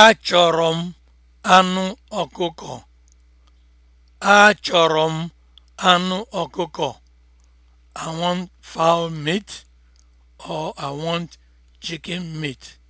Achọrọ m anụ ọkụkọ. Achọrọ m anụ ọkụkọ. I want fowl meat or I want chicken meat.